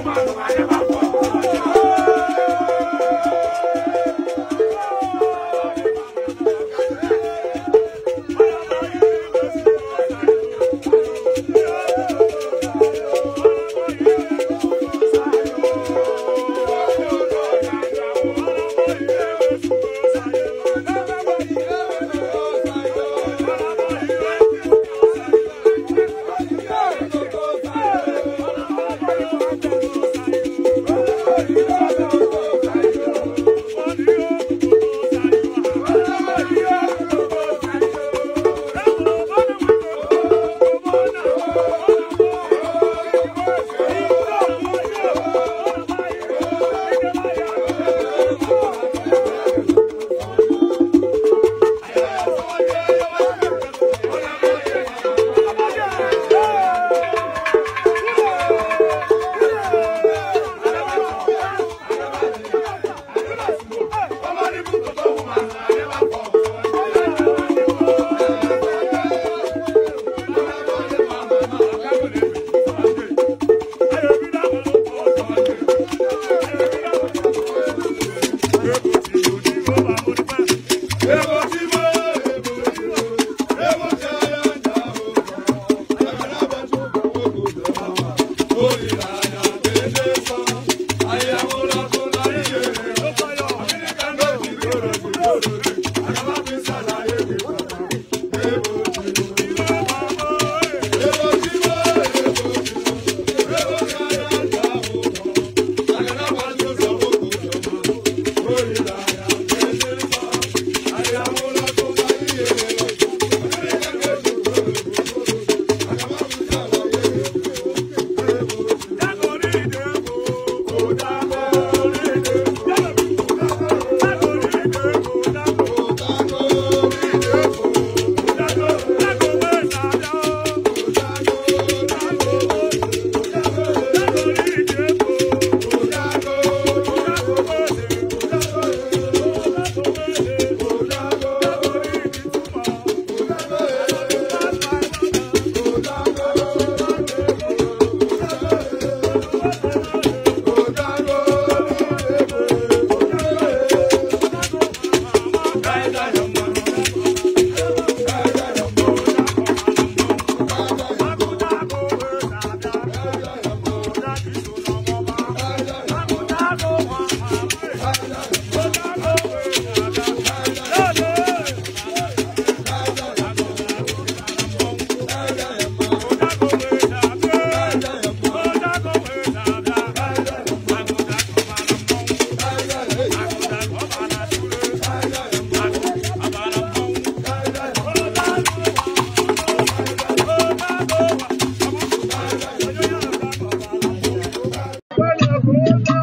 你骂什么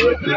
Yeah.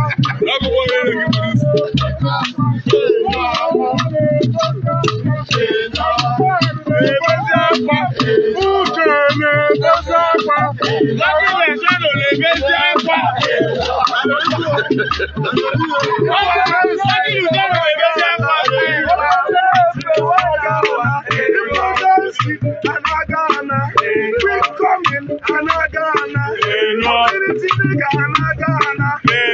ẹja ẹ̀fà. wọ́n ti sọ fún sọ́kì ìlú jẹ́ ọ̀rọ̀ ẹja ẹ̀fà. Anagana, quick coming, Anagana, Infinity nigga, Anagana, Amen.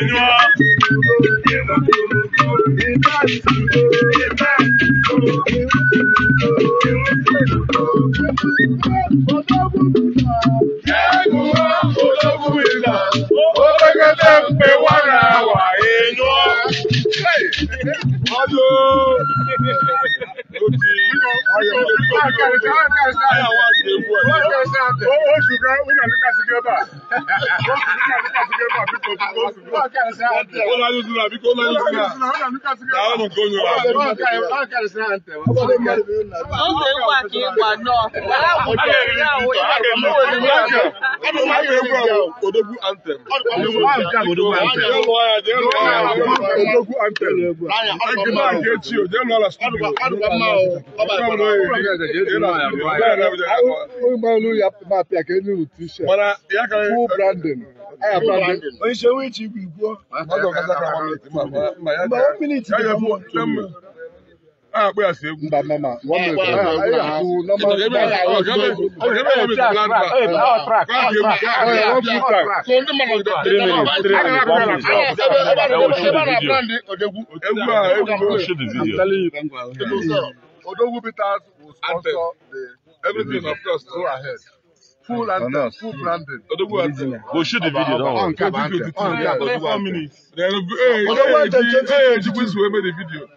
ọdún òtí ayọ̀ ayàwó àti ewu ẹ̀. oṣù kan wíńdà lúkà sí gẹ́bà wíńdà lúkà sí gẹ́bà bí kò tó oṣù kan. ó lálẹ́ ìdúrà bí kò lálẹ́ ìdúrà làwọn ọmọ kò yọ àwọn ọmọ kò yọ. ó ṣe é wà kí n wà náà. aláwọ̀ ìṣẹ̀lẹ̀ àwọn ìṣẹ̀lẹ̀ àwọn ìṣẹ̀lẹ̀ Odogwu anthem. Odogwu anthem. Odogwu anthem. Ẹgbẹ́ náà kì í ti o, jẹ́ lọ́la sùkúlù. Ọgbà olú ya máa pè àkẹ́ ní rùtú ṣe. Fún branding. Aya branding. Oyin ṣe wíìtì ìgbìgbọ́. Mọ̀ ọ́ mílíìtì ìgbìgbọ́ akpọ ya si egwu mba mama Odogwu Peters will sponsor the everything of course go ahead full and no, no. full branding. Odogwu Ante. Go shoot the video now. On cap, on cap. Odogwu Ante. Odogwu Ante. Hey, hey, hey, hey, hey, hey, hey, hey, hey, hey, hey, hey,